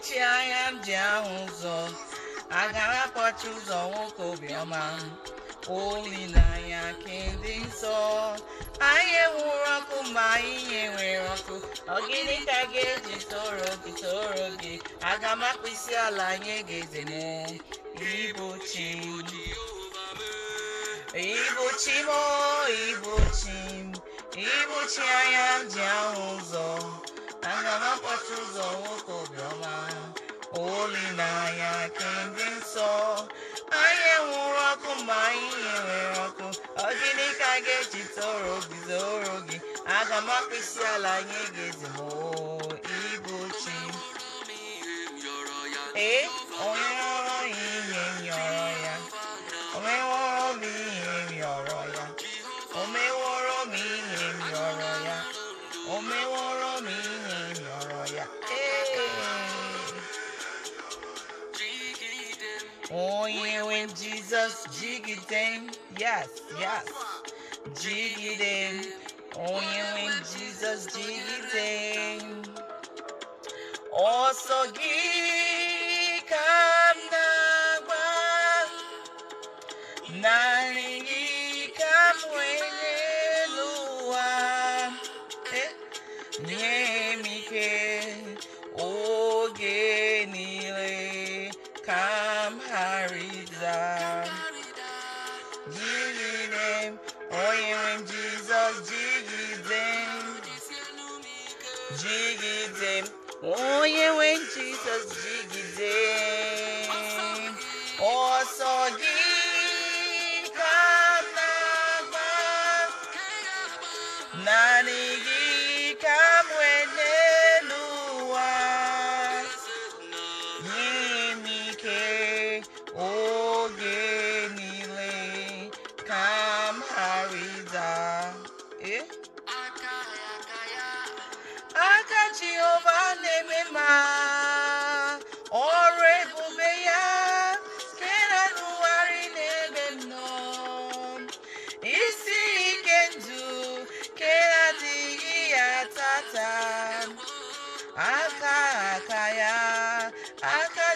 kpọchi anya ndị ahụ ụzọ agara akpọchi ụzọ nwoke obiọma olileanya ka dị nsọ anyị enwuru ọkụ ma anyị nyenwere ọkụ ọgịnị ka ga-eji toro gị toro gị aga m isi ala anyị ga eze ịbụ m oh, anya ahụ ụzọ olileanya nke ndị nsọ anyị enwuru ọkụ ma anyị nwere ọkụ ọ ka ga-eji toro obi orogi gị aga ala anyị ga-ezimo On you with Jesus, jiggy them. Yes, yes. Jiggy them. Toying with Jesus, jiggy them. Also gika nagwa. Nani gika mwene luwa. Eh, nye mike. Oge nile. Kama down. them, oh you when Jesus jiggy them, jiggy them, oh yeah, when Jesus jiggy them.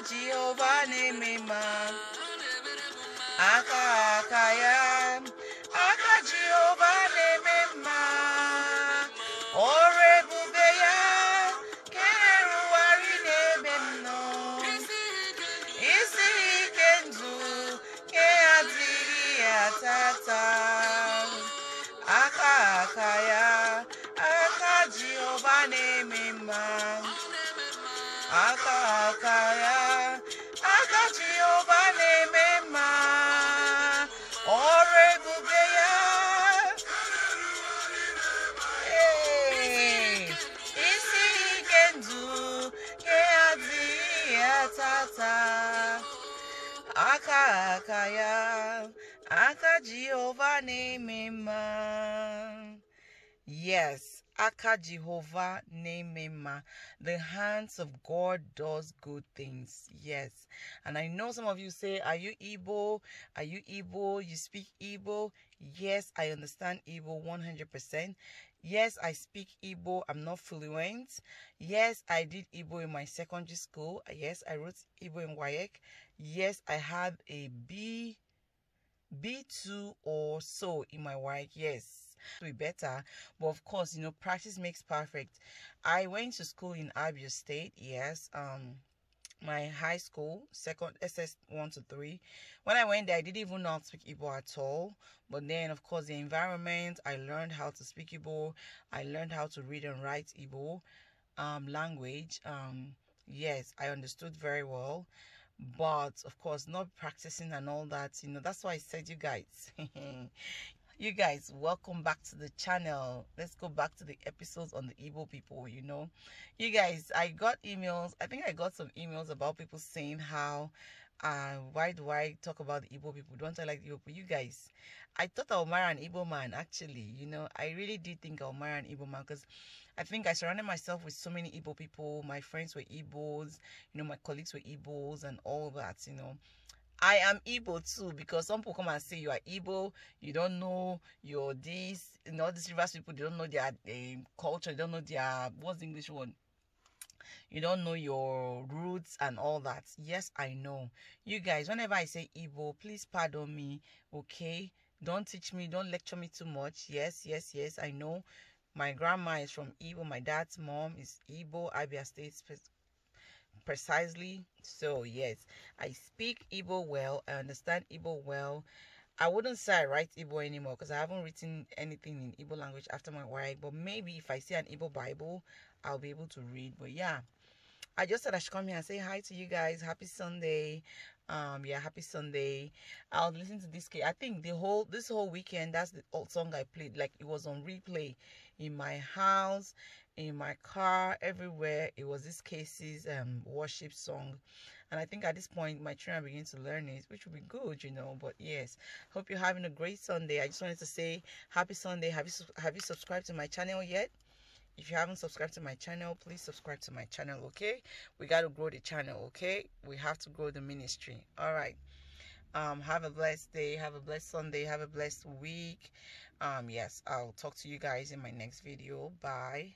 Jehovah name Aka aka aka Jehovah name Ore bube ya wari Isi ke Aka Jehovah name Aka ta aka aka ya aka Jehovah name him. Uh, yes. Aka Jehovah Nemema. The hands of God does good things. Yes. And I know some of you say, Are you Igbo? Are you Igbo? You speak Igbo? Yes, I understand Igbo 100%. Yes, I speak Igbo. I'm not fluent. Yes, I did Igbo in my secondary school. Yes, I wrote Igbo in WAEC. Yes, I had a B, B2 or so in my work, Yes be better but of course you know practice makes perfect i went to school in abia state yes um my high school second ss 1 to 3 when i went there i didn't even know how to speak igbo at all but then of course the environment i learned how to speak igbo i learned how to read and write igbo um, language um, yes i understood very well but of course not practicing and all that you know that's why i said you guys you guys welcome back to the channel let's go back to the episodes on the evil people you know you guys i got emails i think i got some emails about people saying how uh why do i talk about the evil people don't i like the people you guys i thought i'll marry an evil man actually you know i really did think i'll marry an evil man because i think i surrounded myself with so many evil people my friends were Igbos you know my colleagues were Igbos and all that you know I am Igbo too because some people come and say you are Igbo, you don't know your this, you know, these rivers people, they don't know their um, culture, they don't know their, what's the English one? You don't know your roots and all that. Yes, I know. You guys, whenever I say Igbo, please pardon me, okay? Don't teach me, don't lecture me too much. Yes, yes, yes, I know. My grandma is from Igbo. My dad's mom is Igbo, Abia State precisely so yes i speak Igbo well i understand Igbo well i wouldn't say i write Igbo anymore because i haven't written anything in Igbo language after my wife but maybe if i see an Igbo bible i'll be able to read but yeah I just said I should come here and say hi to you guys. Happy Sunday. Um, yeah, happy Sunday. I'll listen to this. I think the whole this whole weekend, that's the old song I played. Like it was on replay in my house in my car everywhere it was this cases um worship song and i think at this point my children begin to learn it which would be good you know but yes hope you're having a great sunday i just wanted to say happy sunday have you have you subscribed to my channel yet if you haven't subscribed to my channel please subscribe to my channel okay we got to grow the channel okay we have to grow the ministry all right um have a blessed day have a blessed sunday have a blessed week um yes i'll talk to you guys in my next video bye